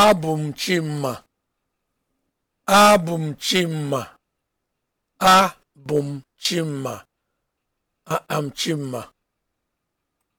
abụ m chimma abụ m chimma abụ m chimma am chimma